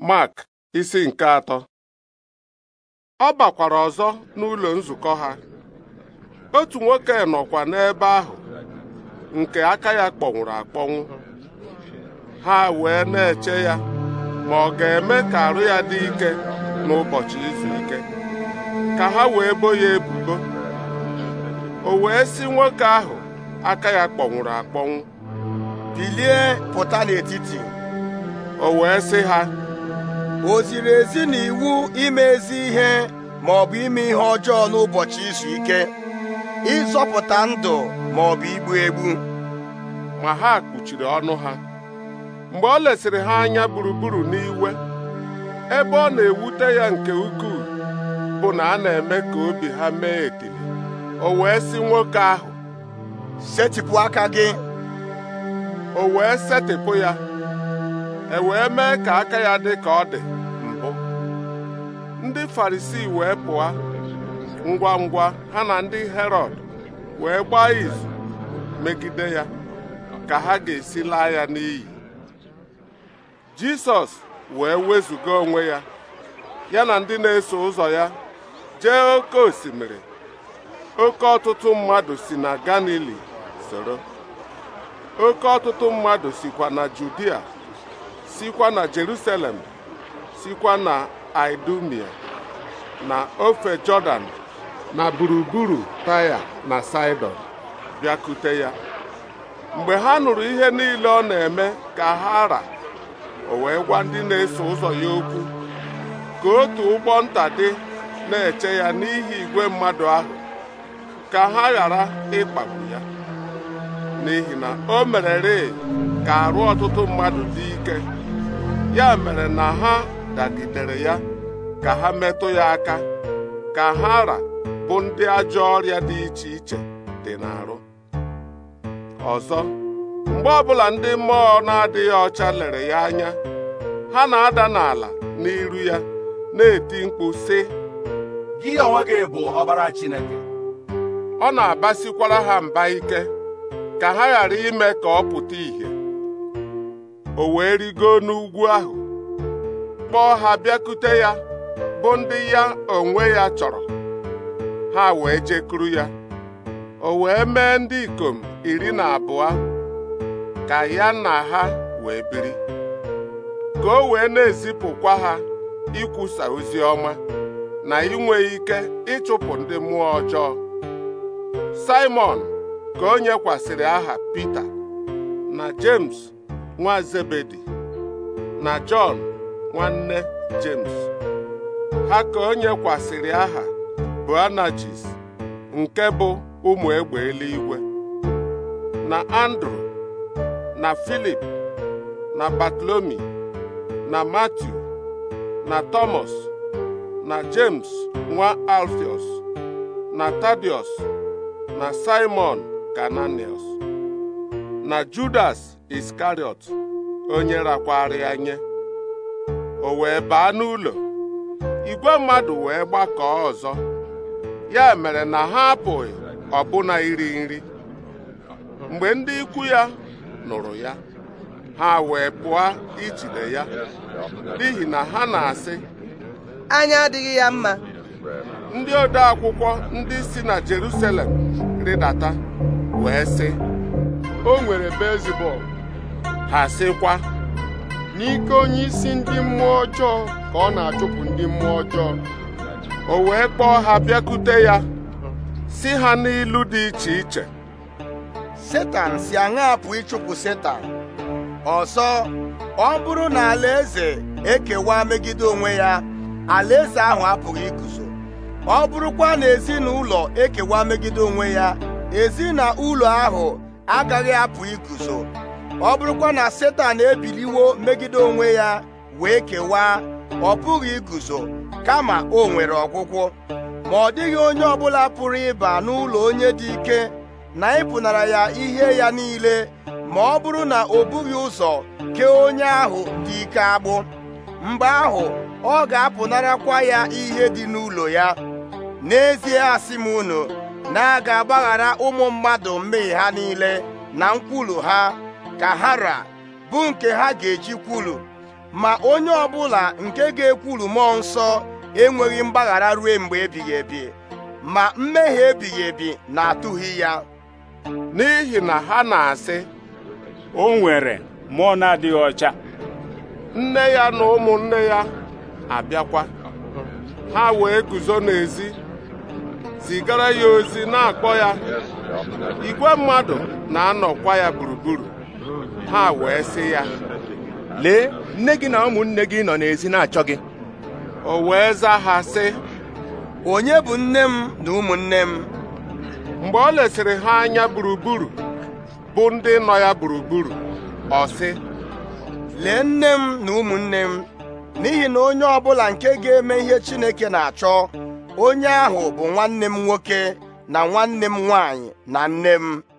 Mark isi nke atọ ọ bakwara ọzọ n'ụlọ nzukọ ha otu nwoke nọkwa n'ebe ahụ nke aka ya kpọnwụrụ akpọnwụ ha wee na-eche ya ma ọ ga-eme ka arụ ya dị ike n'ụbọchị izu ike ka ha wee bo ya ebubo o wee si nwoke ahụ aka ya kpọnwụrụ akpọnwụ bilie pụta n'etiti o wee si ha o ziri ezi na iwu ime ezi ihe ma ọ bụ ime ihe ọjọọ n'ụbọchị izu ike ịzọpụta ndụ ma ọ bụ igbu egbu ma ha kpuchiri ọnụ ha mgbe ọ lesịrị ha anya gburugburu n'iwe ebe ọ na-ewute ya nke ukwuu bụ na a na-eme ka obi ha mee ekele o wee sị nwoke ahụ setịpụ aka gị o wee setịpụ ya e wee mee ka aka ya dị ka ọ dị mbụ ndị Farisii wee pụọ ngwa ngwa ha na ndị herod wee gbaa izu megide ya ka ha ga-esi laa ya n'iyi Jisọs wee wezụga onwe ya ya na ndị na-eso ụzọ ya jee oke osimiri oke ọtụtụ mmadụ si na Galili soro oke ọtụtụ mmadụ sikwa na Judia sikwa na Jerusalem sikwa na Idumia na ofe Jọdan na gburugburu taya na Saịdọn bịakute ya mgbe ha nụrụ ihe niile ọ na-eme ka ha ra o wee gwa ndị na-eso ụzọ ya okwu ka otu ụgbọ nta dị na-eche ya n'ihi igwe mmadụ ahụ ka ha ghara ịkpagbu ya n'ihi na o mererị ka arụ ọtụtụ mmadụ dị ike ya mere na ha dagidere ya ka ha metụ ya aka ka ha ra bụ ndị ajọ ọrịa dị iche iche dị n'arụ ọzọ mgbe ọbụla ndị mmụọ na-adịghị ọcha lere ya anya ha na-ada n'ala n'iru ya na-eti mkpu sị gị onwe gị bụ ọbara Chineke ọ na-abasikwara ha mba ike ka ha ghara ime ka ọ pụta ìhè o wee rigo n'ugwu ahụ kpọọ ha bịakute ya bụ ndị ya onwe ya chọrọ ha wee jekuru ya o wee mee ndị ikom iri na abụọ ka ya na ha wee biri ka o wee na-ezipụkwa ha ikwusa ozi ọma na inwe ike ịchụpụ ndị mmụọ ọjọọ Simon ka o nyekwasịrị aha Pita na James nwa Zebedi na Jọn nwanne James ha ka o nyekwasịrị aha Boanajis nke bụ ụmụ egbe eluigwe na Andrew na Filip na Batlomi na Matiu na Thomas na James nwa Alfios na Tadius na Simon Kananius na Judas iskariot onye nyere akwari nye o wee baa n'ụlọ igwe mmadụ wee gbakọọ ọzọ ya mere na ha apụghị ọbụna iri nri mgbe ndị ikwu ya nụrụ ya ha wee pụọ ijide ya n'ihi na ha na-asị anya adịghị ya mma ndị ode akwụkwọ ndị si na Jerusalem rịdata wee sị o nwere Beelzebub Asịkwa, sịkwa n'ike onye isi ndị mmụọ ọjọọ ka ọ na-achụpụ ndị mmụọ ọjọọ o wee kpọọ ha bịakute ya si ha n'ilu dị iche iche setan si aṅa ịchụpụ setan ọsọ ọ bụrụ na alaeze ekewa megide onwe ya alaeze ahụ apụghị iguzo ọ bụrụkwa na ezinụlọ ekewa megide onwe ya ezinụlọ ahụ agaghị apụ iguzo ọ bụrụkwa na setan ebiliwo megide onwe ya wee kewaa ọ pụghị iguzo kama o nwere ọgwụgwụ ma ọ dịghị onye ọbụla pụrụ ịba n'ụlọ onye dị ike na ịpụnara ya ihe ya niile ma ọ bụrụ na o bughị ụzọ kee onye ahụ dị ike agbụ mgbe ahụ ọ ga-apụnarakwa ya ihe dị n'ụlọ ya n'ezie asị m unu na a ga-agbaghara ụmụ mmadụ mmehie ha niile na nkwulu ha ka hara bụ nke ha ga-eji kwulu ma onye ọbụla nke ga-ekwulu mmụọ nsọ enweghị mgbaghara ruo mgbe ebighị ebi ma mmehie ebighị ebi na-atụghị ya n'ihi na ha na-asị o nwere mmụọ na-adịghị ọcha nne ya na ụmụnne ya abịakwa ha wee guzo n'ezi zigara ya ozi na-akpọ ya igwe mmadụ na-anọkwa ya gburugburu ha wee sị ya lee nne gị na ụmụnne gị nọ n'ezi na-achọ gị o wee zaa ha sị onye bụ nne m na ụmụnne m mgbe ọ lesịrị ha anya gburugburu bụ ndị nọ ya gburugburu ọ sị lee nne m na ụmụnne m n'ihi na onye ọbụla nke ga-eme ihe Chineke na-achọ onye ahụ bụ nwanne m nwoke na nwanne m nwaanyị na nne m